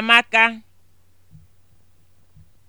amaka